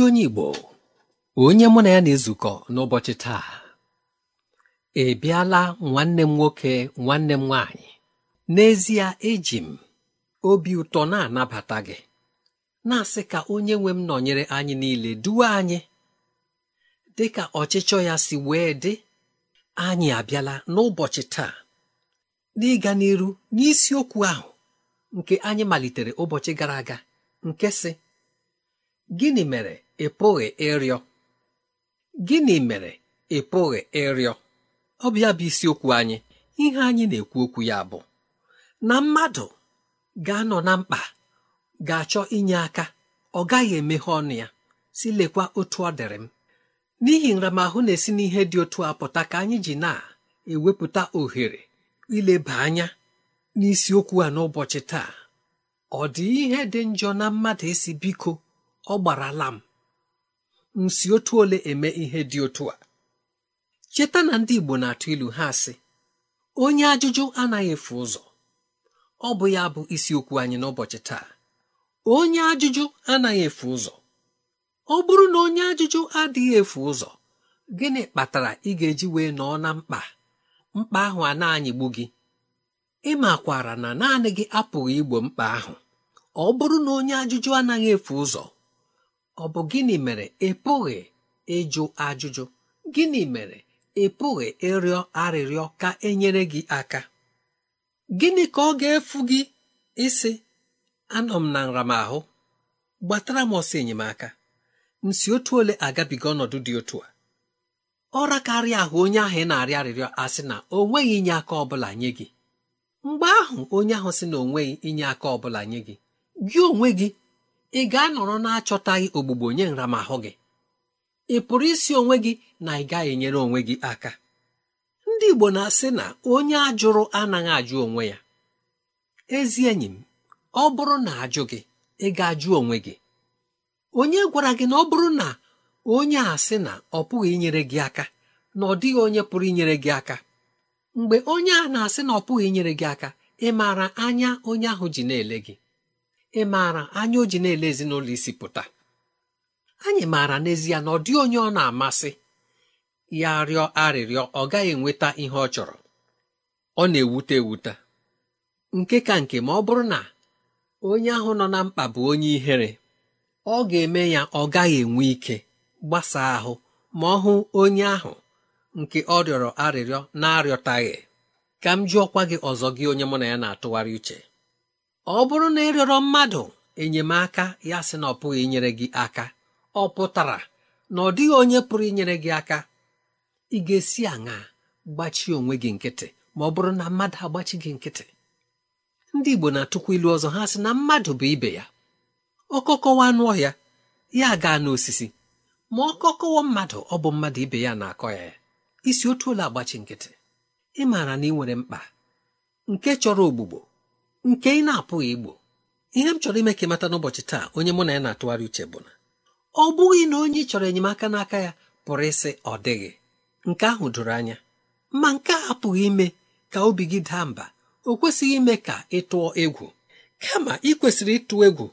ezi onye Igbo onye mụ na ya na-ezukọ n'ụbọchị taa ị bịala nwanne m nwoke nwanne m nwaanyị n'ezie eji m obi ụtọ na-anabata gị na-asị ka onye nwe m nọnyere anyị niile duwe anyị dị ka ọchịchọ ya si wee dị anyị abịala n'ụbọchị taa n'ịga n'iru n'isiokwu ahụ nke anyị malitere ụbọchị gara aga nke sị gịnị mere ị pụghị ịrịọ gịnị mere ị pụghị ịrịọ ọ bụ bụ isiokwu anyị ihe anyị na-ekwu okwu ya bụ na mmadụ ga-anọ na mkpa ga-achọ inye aka ọ gaghị emeghe ọnụ ya si lekwa otu ọ dịrị m n'ihi nramahụ na-esi n'ihe dị otu a pụta ka anyị ji na-ewepụta ohere ileba anya n'isiokwu a n'ụbọchị taa ọ dị ihe dị njọ na mmadụ esi biko ọ gbarala m m si otu ole eme ihe dị otu a cheta na ndị Igbo na-atụ ilu ha sị onye ajụjụ anaghị efu ụzọ ọ bụ ya bụ isiokwu anyị n'ụbọchị taa onye ajụjụ anaghị efu ụzọ ọ bụrụ na onye ajụjụ adịghị efu ụzọ gịnị kpatara ị ga-eji wee nọọ na mkpa mkpa ahụ a na-anyịgbu gị ị makwara na naanị gị apụghị igbo mkpa ahụ ọ bụrụ na onye ajụjụ anaghị efu ụzọ ọ bụ gịnị mere ị e pụghị ịjụ ajụjụ gịnị mere ị e pụghị ịrịọ arịrịọ ka enyere gị aka gịnị ka ọ ga-efu gị ịsị anọ m na nramahụ gbatara m ọsọ enyemaka Nsị otu ole agabiga ọnọdụ dị otu a ọ rakarị ahụ onye ahụ ị na-arịọ arịrịọ asị na o inye aka ọbụla nye gị mgbe ahụ onye ahụ sị na o inye aka ọbụla nye gị gị onwe gị ị ga-anọrọ na-achọtaghị ogbugbo nye nramahụ gị ị pụrụ isi onwe gị na ị gaghị enyere onwe gị aka ndị Igbo na-asị na onye ajụrụ anaghị ajụ onwe ya ezi enyi m ọ bụrụ na ajụ gị ị ga-ajụ onwe gị onye gwara gị na ọ bụrụ na onye a sị na ọ pụghị inyere gị aka na ọ dịghị onye pụrụ inyere gị aka mgbe onye a na-asị na ọ pụghị inyere gị aka ị maara anya onye ahụ ji na-ele gị ị maara anya o ji na-ele ezinụlọ isi pụta anyị maara n'ezie na ọ dị onye ọ na-amasị ya rịọ arịrịọ ọ gaghị enweta ihe ọ chọrọ ọ na-ewute ewute nke ka nke ma ọ bụrụ na onye ahụ nọ na mkpa bụ onye ihere ọ ga-eme ya ọ gaghị enwe ike gbasaa ahụ ma ọ hụ onye ahụ nke ọ rịọrọ arịrịọ na-arịọtaghị ka m jụọkwa gị ọzọ gị onye mụ na ya na-atụgharị uche ọ bụrụ na ịrịọrọ mmadụ enyemaka ya sị na ọ pụghị inyere gị aka ọ pụtara na ọ dịghị onye pụrụ inyere gị aka ị ga-esi aṅa gbachie onwe gị nkịtị ma ọ bụrụ na mmadụ agbachi gị nkịtị ndị Igbo na-atụkwa ilu ọzọ ha sị na mmadụ bụ ibe ya ọkọkọwa anụ ọhịa ya gaa n'osisi ma ọ kọkọwa mmadụ ọ bụ mmadụ ibe ya na-akọ ya ya isi otu ụlọ agbachi nkịtị ị maara na ị nwere mkpa nke chọrọ ogbugbo nke ị na-apụghị igbo ihe m chọrọ ime ka ịmata n'ụbọchị taa onye mụ na ya na-atụgharị uche bụ na ọ bụghị na onye ị chọrọ enyemaka n'aka ya pụrụ ịsị ọ dịghị nke ahụ doro anya ma nke a apụghị ime ka obi gị daa mba o kwesịghị ime ka ị tụọ egwu kama ị kwesịrị ịtụ egwu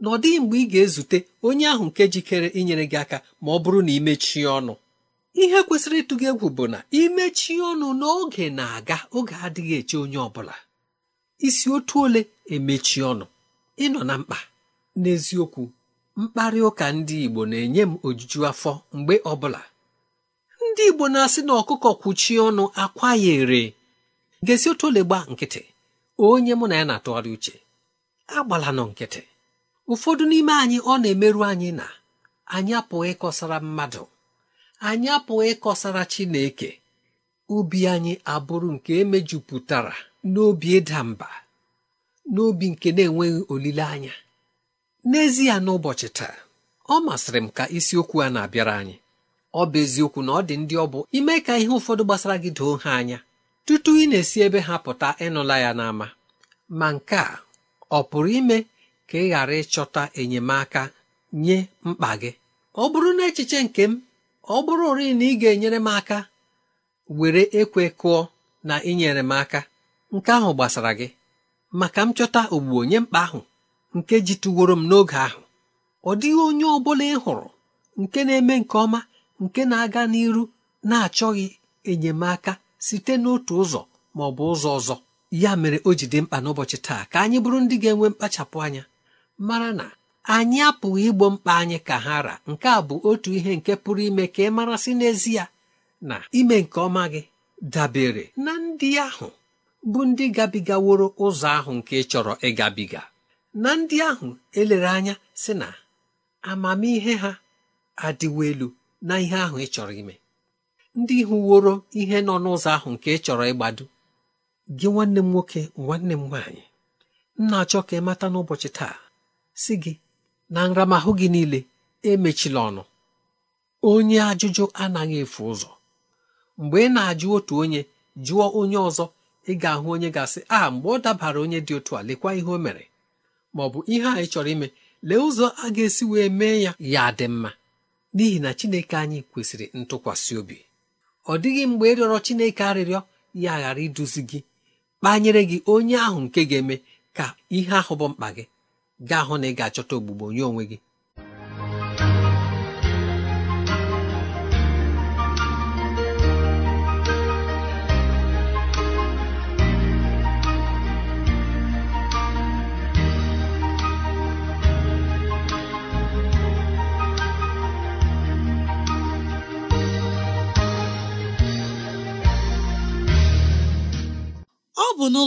na ọ dịghị mgbe ị ga-ezute onye ahụ nke jikere inyere gị aka ma ọ bụrụ na ị mechie ọnụ ihe kwesịrị ịtụ gị egwu bụ na imechie ọnụ n'oge na-aga oge adịghị eche onye ọ bụla isi otu ole emechi ọnụ ịnọ na mkpa n'eziokwu mkparị ụka ndị Igbo na-enye m ojuju afọ mgbe ọbụla ndị Igbo na-asị na ọkụkọ kwuchie ọnụ akwa ya ere gesi otu ole gba nkịtị onye mụ na ya na-atụgharị uche agbala nọ nkịtị ụfọdụ n'ime anyị ọ na-emerụ anyị na anyị apụghị ịkọsara mmadụ anyị apụghị ịkọsara Chineke ubi anyị abụrụ nke emejupụtara n'obi ịda mba n'obi nke na-enweghị olileanya n'ezie n'ụbọchị taa ọ masịrị m ka isiokwu a na-abịara anyị ọ bụ eziokwu na ọ dị ndị ọ bụ ime ka ihe ụfọdụ gbasara gị doo ha anya tutu ị na-esi ebe ha pụta ịnụla ya n'ama ma nke a ọ pụrụ ime ka ị ghara ịchọta enyemaka nye mkpa gị ọ bụrụ na echiche nke m ọ bụrụ ori na ị ga-enyere m aka were ekwe kụọ na nyere m aka nke ahụ gbasara gị ma ka m chọta ogbugbo onye mkpa ahụ nke jituworo m n'oge ahụ ọ dịghị onye ọ bụla ị hụrụ nke na-eme nke ọma nke na-aga n'iru na-achọghị enyemaka site n'otu ụzọ ma ọ bụ ụzọ ọzọ ya mere o ji dị mkpa n'ụbọchị taa ka anyị bụrụ ndị ga-enwe mkpachapụ anya mara na anyị apụghị igbo mkpa anyị ka ha ra nke a bụ otu ihe nke pụrụ ime ka ị marasị n'ezie na ime nke ọma gị dabere na ndị ahụ bụ ndị gabigaworo ụzọ ahụ nke chọrọ ịgabiga na ndị ahụ elere anya sị na amamihe ha adịwo elu na ihe ahụ ị chọrọ ime ndị hụworo ihe nọ n'ụzọ ahụ nke ị chọrọ ịgbado gị nwanne m nwoke nwanne m nwaanyị m na-achọ ka ị mata n'ụbọchị taa si gị na nramahụ gị niile emechila ọnụ onye ajụjụ anaghị efu ụzọ mgbe ị na-ajụ otu onye jụọ onye ọzọ ị ga-ahụ onye ga-asị a ah, mgbe ọ dabara onye dị otu a lekwa ihe o mere ma ọ bụ ihe anyị chọrọ ime lee ụzọ a ga-esi wee mee ya ya dị mma n'ihi na Chineke anyị kwesịrị ntụkwasị obi ọ dịghị mgbe ịrịọrọ Chineke arịrịọ ya ghara iduzi gị kpanyere gị onye ahụ nke ga-eme ka ihe ahụ bụ mkpa gị gaa hụ na ị achọta ogbugbo nye onwe gị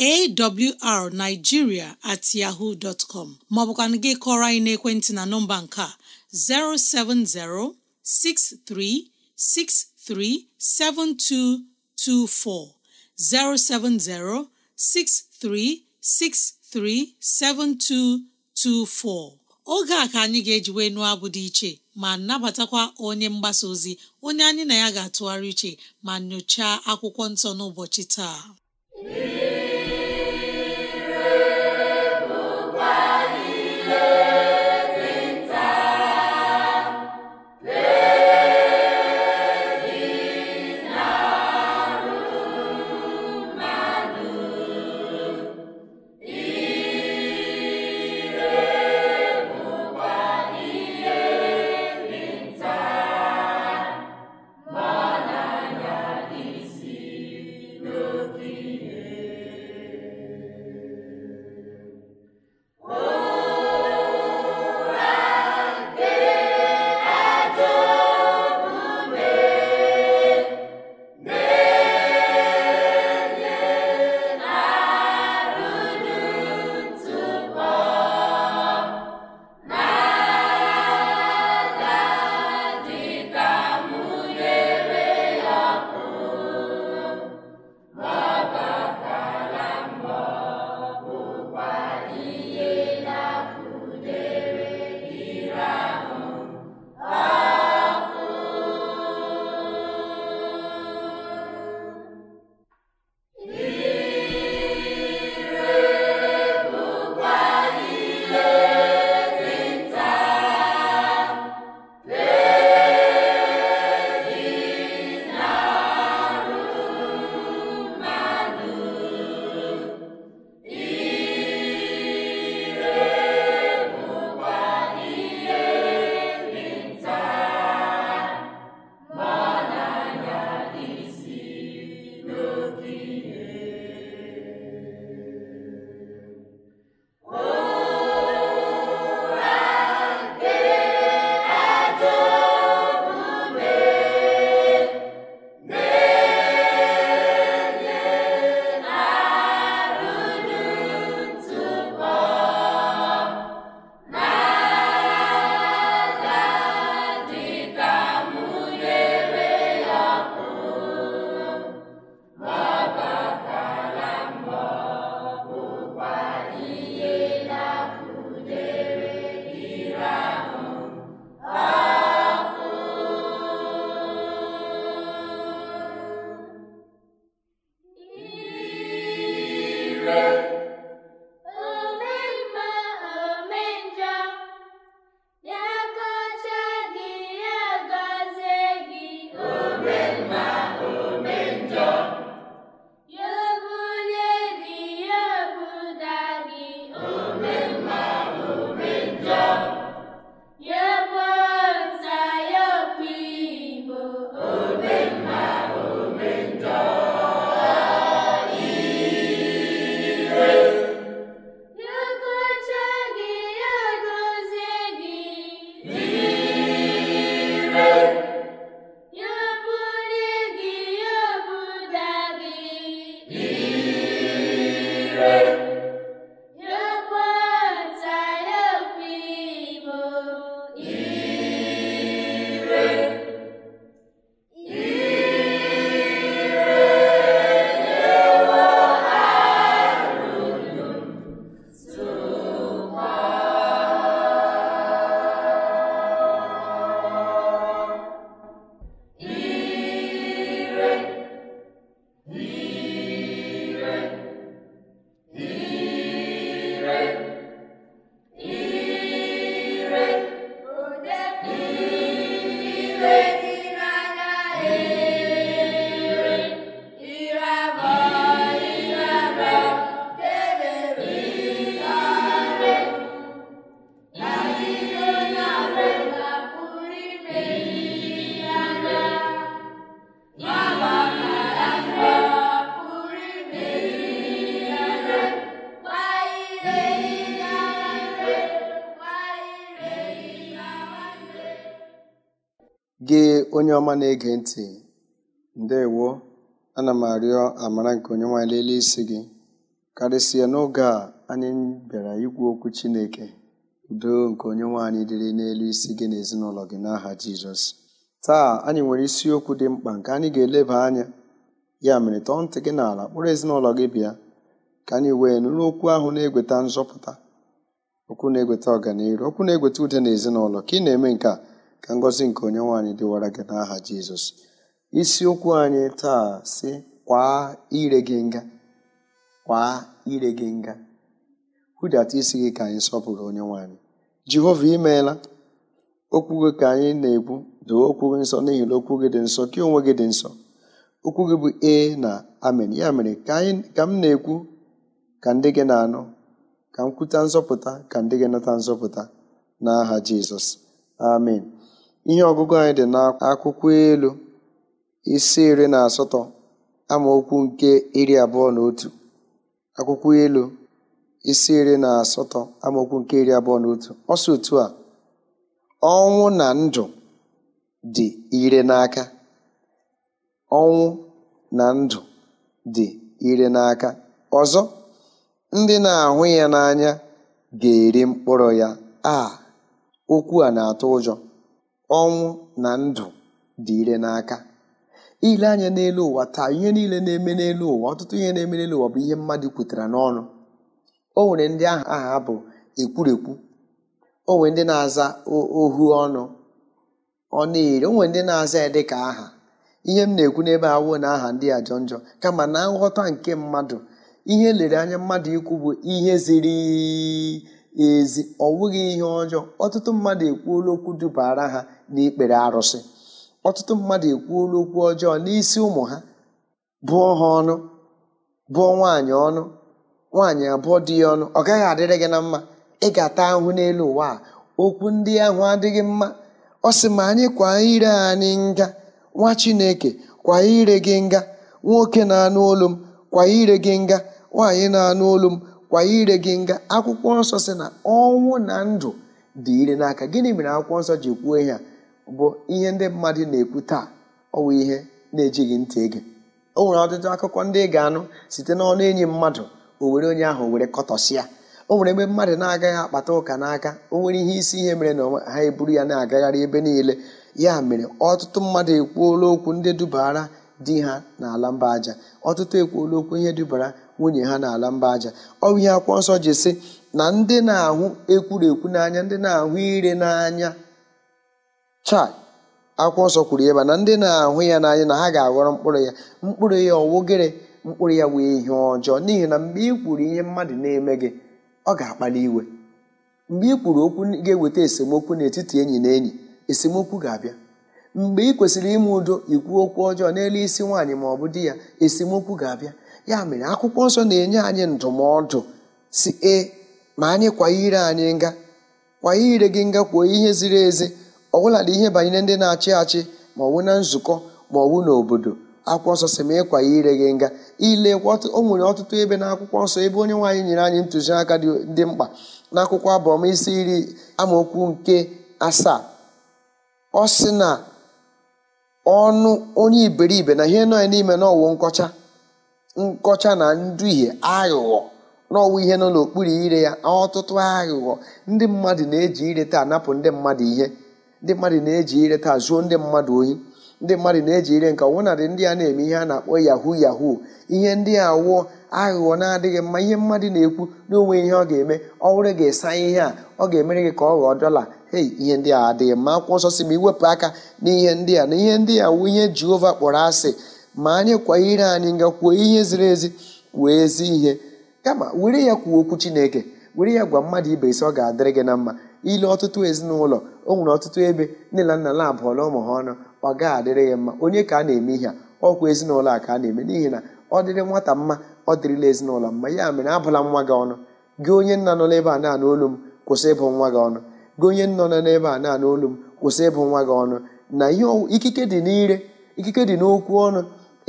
awrnigeria at yahoo dot com maọbụkwana gị kọrọ anyị n'ekwentị na nọmba nke a 07063637224 7224 oge a ka anyị ga-ejiwe nụọ abụ dị iche ma nabatakwa onye mgbasa ozi onye anyị na ya ga-atụgharị iche ma nyochaa akwụkwọ nsọ n'ụbọchị taa ọma na-ege ntị ndewo ana m arịọ amara nke onye nwe lelee isi gị karịsịa n'oge a anyị bịara ikwu okwu chineke udo nke onye nwe anyị dịrị n'elu isi gị na ezinụlọ gị n'aha jizọs taa anyị nwere isiokwu dị mkpa nke anyị ga-eleba anya ya mere tọọ ntị gị n'ala kpụrụ ezinụlọ gị bịa ka anyị wee nụrụ okwu ahụ na-egweta nzọpụta okwu na-egweta ọganihu okwu na-egweta ude na ezinụlọ ka ị na-eme nke a ka ngọzi nke onye nwaanyị dịwara gị n'aha jizọs isiokwu anyị taa si kwaa ire gị nga kwaa ire gị nga hụdata isi gị ka anyị sọpụrụ onye nwaanyị jehova imeela okwu gị ka anyị na-ekwu doo okwu gị nsọ n'ihi na okwu gị dị nsọ ka onwe gị dị nsọ okwu gị bụ e na amen ya mere ka m na-ekwu ka ndị gị na-anụ ka m kwuta nzọpụta ka ndị gị nata nzọpụta n'aha jizọs amen Ihe ọgụgụ anyị dị n'akwụkwọ elu, isi iri na asatọ amaokwu nke iri abụọ na otu akwụkwọ elu isi iri na asatọ amaokwu nke iri abụọ na otu ọsọ otu a ọnwụ na ndụ dị ire n'aka ọnwụ na ndụ dị ire n'aka ọzọ ndị na-ahụ ya n'anya ga-eri mkpụrụ ya a okwu a na-atụ ụjọ ọnwụ na ndụ dị ire n'aka ile anya n'elu ụwa taa ihe niile na-eme n'elu ụwa ọtụtụ ihe na-eme n'elu ụwa bụ ihe mmadụ kwutara n'ọnụ o nwere ndị aha aha bụ ekwurekwu o nwere ndị na-aza ohu ọnụ ọ na-eri o nwere ndị na-aza dị ka aha ihe m na-ekwu n'ebe awụ na aha ndị ajọ njọ kama na nghọta nke mmadụ ihe lere anya mmadụ ikwu bụ ihe ziri ezi ọ wụghị ihe ọjọọ ọtụtụ mmadụ ekwuola okwu dubara ha n'ikpere arụsị ọtụtụ mmadụ ekwuola okwu ọjọọ n'isi ụmụ ha bụọ ha ọnụ bụọ nwaanyị ọnụ nwaanyị abụọ dị ya ọnụ ọ gaghị adịrị gị na mma ị ga-ata ahụ n'elu ụwa a okwu ndị ahụ adịghị mma ọ sị ma anyị kwa ire anyị nga nwa chineke kwa ire gị nga nwoke na-anụ olu m kwa ire gị nga nwaanyị na-anụ olu m kwa ire gị nga akwụkwọ nsọ si na ọnwụ na ndụ dị ire n'aka gịnị mere akwụkwọ nsọ ji kwuo ya bụ ihe ndị mmadụ na-ekwu taa ọwụ ihe na-ejighị ntị ege o nwere ọtụtụ akụkọ ndị ị ga-anụ site n'ọnụ enyi mmadụ o were onye ahụ were kọtọsịa o nwere ebe mmadụ na-agaghị akpata ụka n'aka o nwere ihe isi ihe mere na ha eburu ya na-agagharị ebe niile ya mere ọtụtụ mmadụ ekwuola okwu ndị dubara di ha n'ala mba aja ọtụtụ ekwuola okwu ihe dubara nwunye ha n'ala mba aja bụ ihe akwụkwọ nsọ ji sị na ndị na-ahụ ekwurekwu n'anya ndị na-ahụ ire n'anya chai akwụkwọ nsọ kwuru ya ba na ndị na-ahụ ya n'anya na ha ga-aghọrọ mkpụrụ ya mkpụrụ ya ọwụgịrị mkpụrụ ya wee ihe ọjọọ n'ihi na mgbe ị kwuru ihe mmadụ na-eme gị ọ ga-akpali iwe mgbe ị kwuru okwu ga-eweta esemokwu n'etiti enyi na enyi esemokwu ga-abịa mgbe ị kwesịrị ime udo ikwu okwu ọjọọ n'elu isi nwaanyị ma ọ bụ di ya esemokwu ga-abịa ya mere akwụkwọ nsọ na-enye anyị ndụmọdụ si e ma anyị kwanyere anyị nga kwa ire gị nga kwuo ihe ziri ezi ọbụladị ihe banyere ndị na-achị achị ma ọwụ na nzukọ ma ọwụ n'obodo akwụkwọ nsọ si ma ịkwa ire gị nga ilekwa o nwere ọtụtụ ebe na akwụkwọ nsọ ebe onye nwaanyị nyere anyị ntụziaka dị mkpa na akwụkwọ abọm isi iri amaokwu nke asaa ọ sị na ọnụ onye iberibe na ihe nọ n'ime na ọwụ nkọcha nkọcha na nduhie aghụghọ n'ọwụ ihe nọ n'okpuru ire ya ọtụtụ aghụghọ ndị mmadụ na-eji ire taa napụ ndị mmadụ ihe ndị mmadụ na-eji ire taa zuo ndị mmadụ oyi ndị mmadụ na-eji ire nke ọwụnadị ndị a na-eme ihe a na-akpọ yahoo yahoo ihe ndị a wụọ aghụghọ na-adịghị mma ihe mmadụ na-ekwu n'onwe ihe ọ ga-eme ọhụrụ ga-esa ihe a ọ ga-emere gị ka ọ ghọọ dọla hei ihe ndị a adịghị mma akwụkwọ nsọ si ma iwepụ aka n'ihe ndị a na ihe ndị a wụ ihe Jehova kpọrọ asị ma anyị kwa ire anyị nga kwuo ihe ziri ezi kwuo ezi ihe kama were ya kwuo okwu chineke were ya gwa mmadụ ibe isi ọ ga-adịrị gị na mma ile ọtụtụ ezinụlọ o nwere ọtụtụ ebe nne na nna na-abụọla ụmụ ha ọnụ ọ ga adịrị ya mma onye ka a na-eme ihe a ọkwa ezinụlọ a ka a na-eme n'ihi na ọ dịrị nwata mma ọ dịrịla ezinụlọ mma ya mere abụla nwa gị ọnụ gị onye nna nọ n'ebe a na-anụ m kwụsị ịbụ nwa gị ọnụ gị onye nọ n'ebe a na-anụ m kwụsị ịbụ nwa gị ọnụ na ihe ikike dị n'ire ikike dị n'okwu ọnụ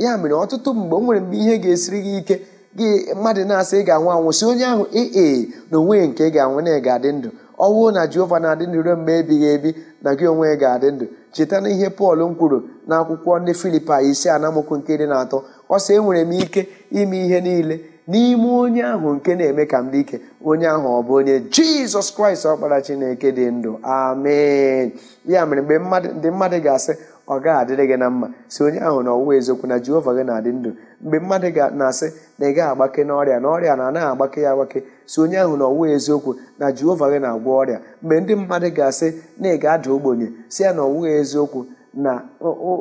ya mere ọtụtụ mgbe m nwere mgbe ihe ga-esiri gị ike gị mmadụ na-asị ị ga-anwụ anwụ si onye ahụ ee na onwe nke ị ga-anwụ na ị ga-adị ndụ ọnwụ na jehova na-adị ndụ ruo mgbe ebighị ebi na gị onwe ga-adị ndụ cheta na ihe pọl m kwuru na akwụkwọ ndị filipa isi anamokwu nke dị na atọ ọ sị enwere m ike ime ihe niile n'ime onye ahụ nke na-eme ka m dị ike onye ahụ ọ bụ onye jizọs kraịst ọkpara chineke dị ndụ amen ya mere mgbe ndị mmadụ ga-asị ọ gaghị adịrị gị na mma si onye ahụ na ọwụwa eziokwu na jehova gị na-adị ndụ mgbe mmadụ na-asị na ị gaghị agbake n'ọrịa na ọrịa na anaghị agbake ya agbake si onye ahụ na ọwụwa eziokwu na jehova gị na-agwọ ọrịa mgbe ndị mmadụ ga-asị na ị ga-ada ogbenye si ya na ọwụwa eziokwu na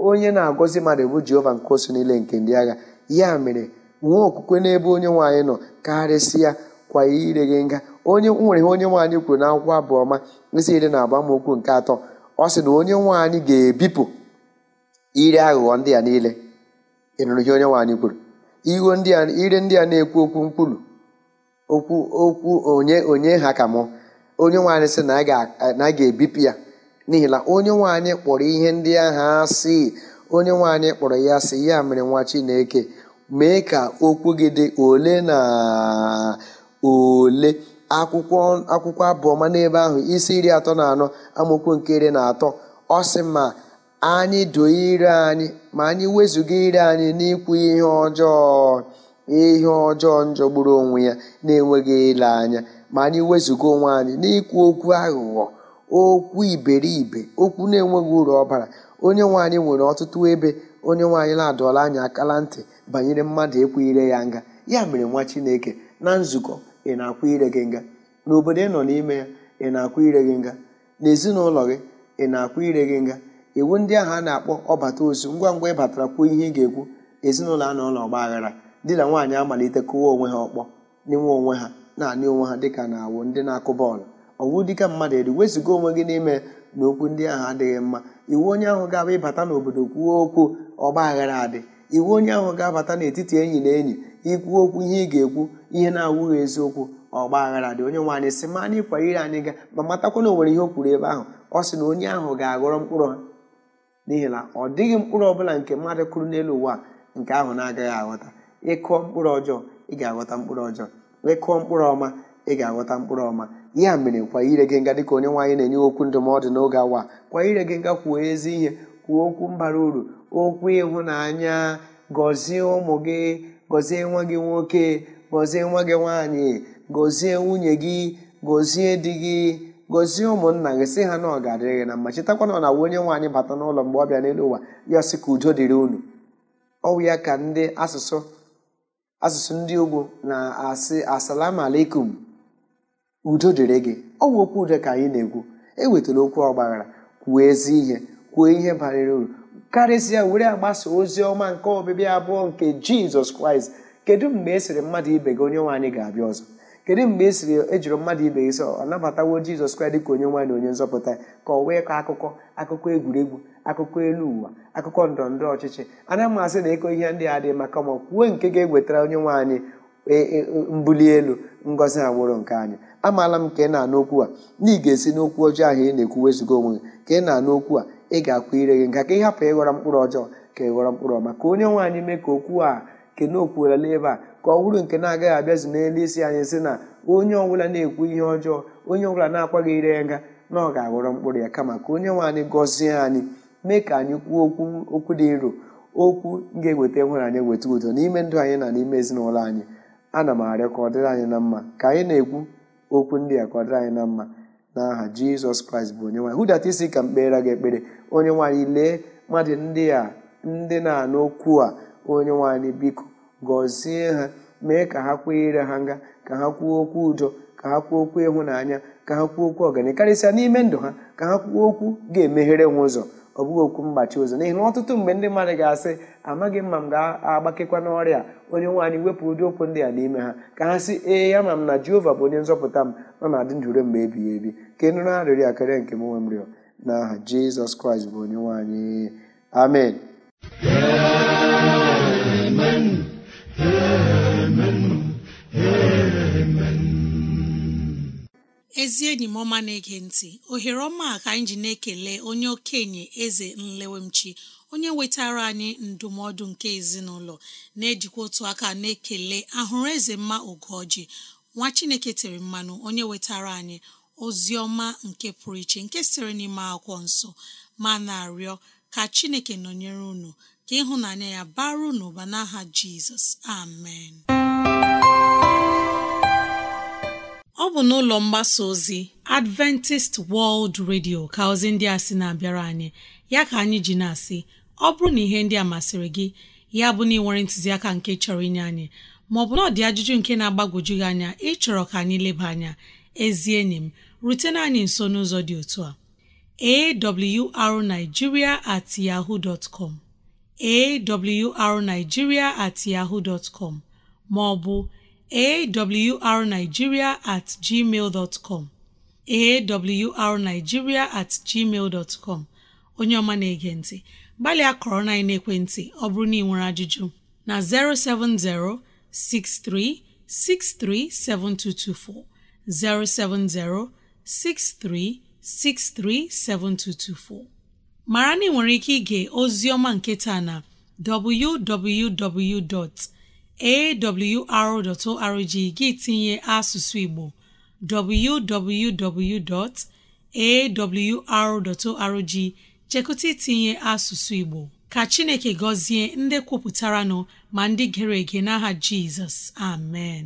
onye na-agọzi mmadụ bụ jehova nke osu niile nke ndị agha ya mere nwee okwukwe n'ebe onye nwaanyị nọ karịsịa kwa ire gị nga onye nwere onye nwaanyị kwuru n'akwụkwọ abụọma isi iri na abụ amaokwu nke atọ ọ sị na onye nwaanyị ga-ebipụ Iri aghụghọ ndị a niile ịnụrụghị onye nwaanyị kwuru iwe ndị a ire ndị a na-ekwu okwu mkwulu okwu okwu onye onye ha ka mụ onye nwaanyị sị na a ga-ebipụ ya n'ihi na onye nwaanyị kpọrọ ihe ndị ahụ asị onye nwaanyị kpọrọ ya sị ya mere nwa Chineke mee ka okwu gị dị ole na ole akwụkwọ akwụkwọ abụọma n'ebe ahụ isi iri atọ na anọ amaokwu nke iri na atọ ọ sị ma anyị doo ire anyị ma anyị wezụga ire anyị n'ikwu ihe ọjọọ ihe ọjọọ njọgburu onwe ya na-enweghị ile anya ma anyị wezụga onwe anyị n'ikwu okwu aghụghọ okwu iberibe okwu na-enweghị uru ọbara onye nwe anyị nwere ọtụtụ ebe onye nwaanyị na-adọla anyị akala ntị banyere mmadụ ịkwụ ire ya nga ya mere nwa chineke na nzukọ ị na-akwụ ire gị nga n'obodo ị nọ n'ime ya ị na-akwụ ire gị nga n'ezinụlọ gị ị na-akwụ ire gị nga iwu ndị ahụ a na-akpọ ọbata ozu ngwa ngwa ị batara kwuo ihe ị ga-ekwu ezinụlọ a nọ ọgba aghara di na nwaanyị amalite kụwa onwe ha ọkpọ n'inwe onwe ha na-anị onwe ha dịka na-awụ ndị na-akụ bọọlụ ọwụ dịka mmadụ eri wezụga onwe gị n'ime na okwu ndị ahụ adịghị mma iwu onye ahụ ga-abụ ịbata n'obodo kwuo okwu ọgba aghara adị iwu onye ahụ ga-abata n'etiti enyi na enyi ikwu okwu ihe ị ga-ekwu ihe na-awụghị eziokwu ọgba aghara dị onye nwaanyị sị ma anyị kwara ire anyị ga ma matakwa na o nwere ihe o kwuru ebe ahụ ọ sị na onye ahụ ga-aghọrọ mkpụrụ ha n'ihi na ọ dịghị mkpụrụ ọbụla nke mmadụ kụrụ n'elu ụwa nke ahụ na-agaghị aghọta ịkụọ mkpụrụ ọjọọ ị ga-aghọta mkpụrụ ọjọọ ịkụọ mkpụrụ ọma ị ga-aghọta mkpụrụ ọma ya mere kwa ire gị nga dịka onye nwaanyị na-enye okwu ndụmọdụ n'oge awa kwa ire gị nga kwuo ezi ihe kwuo okwu mbara uru okwu ịhụnanya gọzie ụmụ gị gọzie nwa gị nwoke gọzie nwa gị nwaanyị gọzie nwunye gị gọzie di gị gozie ụmụnna gị sị ha na ọgadịrị gị na mma chetakwana na ọ na onye nwaanyị bata n'ụlọ mgbe ọ bịa n'elu ụwa ya sị ka udo dịrị unu ọwụ ya ka ndị asụsụ asụsụ ndị ugbo na-asị asalam alaikum udo dịrị gị ọwụ okwu udo ka anyị na-ekwu ewetara okwu ọgbaghara kwuo ezi ihe kwuo ihe banyere uru karịsịa were agbasa ozi ọma nke ọbịbịa abụọ nke jizọs kraịst kedu mgbe e sịrị mmadụ ibe gị onye nwaanyị ga-abịa ọzọ kedu mgbe e siri ejiri mmadụ ibe gị sọ ọ nabatawo jizọs kraịst dịka onye nwaanyị onye nzọpụta ka ọ wee kọọ akụkọ akụkọ egwuregwu akụkọ elu ụwa akụkọ ndọrọndọrọ ọchịchị ana masị na ịkọ ihe ndị a dị maka ma kwuo nke ga-ewetara onye nwaanyị e, e, e, mbuli elu ngozi agbụrụ nke anyị amaala m ka ị na-anụ okwu a na ị ga-esi n'okwu ọjọọ ahụ ị na-ekwu wezụga onwe gị ka ị na-anụ okwu a ị ga-akwụ ire gị nga ka ị hapụ ịghọrọ mkpụrụ ọjọọ ka ịghọrọ mkpụrụ ọma ka onye nwaanyị mee ka okwu a kene ebe a ka ọ bụrụ nke na-agaghị abịazi n'elu isi anyị si na onye ọbụla na-ekwu ihe ọjọọ onye ọbụla na-akwaghị ire nga na ọ ga-aghọrọ mkpụrụ ya kama ka onye nwe anyị gọzie anyị mee ka anyị kwuo okwu okwu dị nro okwu ga-eweta nwere anyị eweta udo n'ime ndụ anyị na n'ime ezinụlọ anyị ana m arịọ ka ọ dịrị anyị na mma ka anyị na-ekwu okwu ndị a ka ọ dịrị anyị na mma n'aha jizọs kraịst bụ onye nwanyị hụdata isi ka m kpeere gị ekpere onye nwaanyị lee mmadụ ndị a ndị na-anụ okwu a onye nwaanyị biko gọzie ha mee ka ha kwuo ire ha nga ka ha kwuo okwu udo ka ha kwuo okwu ịhụnanya ka ha kwuo okwu ọganihu karịsịa n'ime ndụ ha ka ha kwuo okwu ga-emeghere nwa ụzọ ọ bụghị okwu mgbachi ụzọ n'ihi na ọtụtụ mgbe ndị mmadụ ga-asị amaghị mma m ga-agbakekwa n'ọrịa onye nwaanyị wepụ ụdị okwu ndị a n'ime ha ka ha sị ee ya ma m na jehova bụ onye nzọpụta m nọ na adị ndụ mgbe ebighị ebi ka ịnụrụ nụrụ arịrịọ nke m nwe m rịọ n'aha jizọs kraịst bụ onye nwaanyị amen ezi enyi m ọma na-ege ntị ohere ọma ka anyị ji na-ekele onye okenye eze nlewemchi onye wetara anyị ndụmọdụ nke ezinụlọ na-ejikwa otu aka na-ekele ahụrụ eze mma ogoji nwa chineke tere mmanụ onye wetara anyị ozi ọma nke pụrụ iche nke sitere n'ime akwụkwọ nsọ ma na-arịọ ka chineke nọnyere unu ka ịhụnanya ya baru n'ụba n'aha jizọs amen ọ bụ n'ụlọ mgbasa ozi adventist world radio ka ozi ndị a sị na-abịara anyị ya ka anyị ji na-asị ọ bụrụ na ihe ndị a masịrị gị ya bụ na ịnwere ntụziaka nke chọrọ inye anyị maọbụ na ọdị ajụjụ nke na-agbagwoju gị anya ịchọrọ ka anyị leba anya ezi enyi m rutena anyị nso n'ụzọ dị otu a awrnigeria at yahoo dot com awrnigeria at yahoo dot com ma ọ bụ awrnigeria at gmail dot com awrnigeria at gmail dot com onye ọma na-ege ntị gbalịa kọrọ na ekwentị ọ bụrụ na ị nwere ajụjụ na 070 6363 7224 070 6363 7224 mara na ị nwere ike ige ozi ọma nke taa na www.awr.org gị tinye asụsụ Igbo www.awr.org chekụta itinye asụsụ Igbo ka Chineke gọzie ndị kwupụtara nọ ma ndị gere ege n'aha Jizọs amen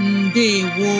ndewo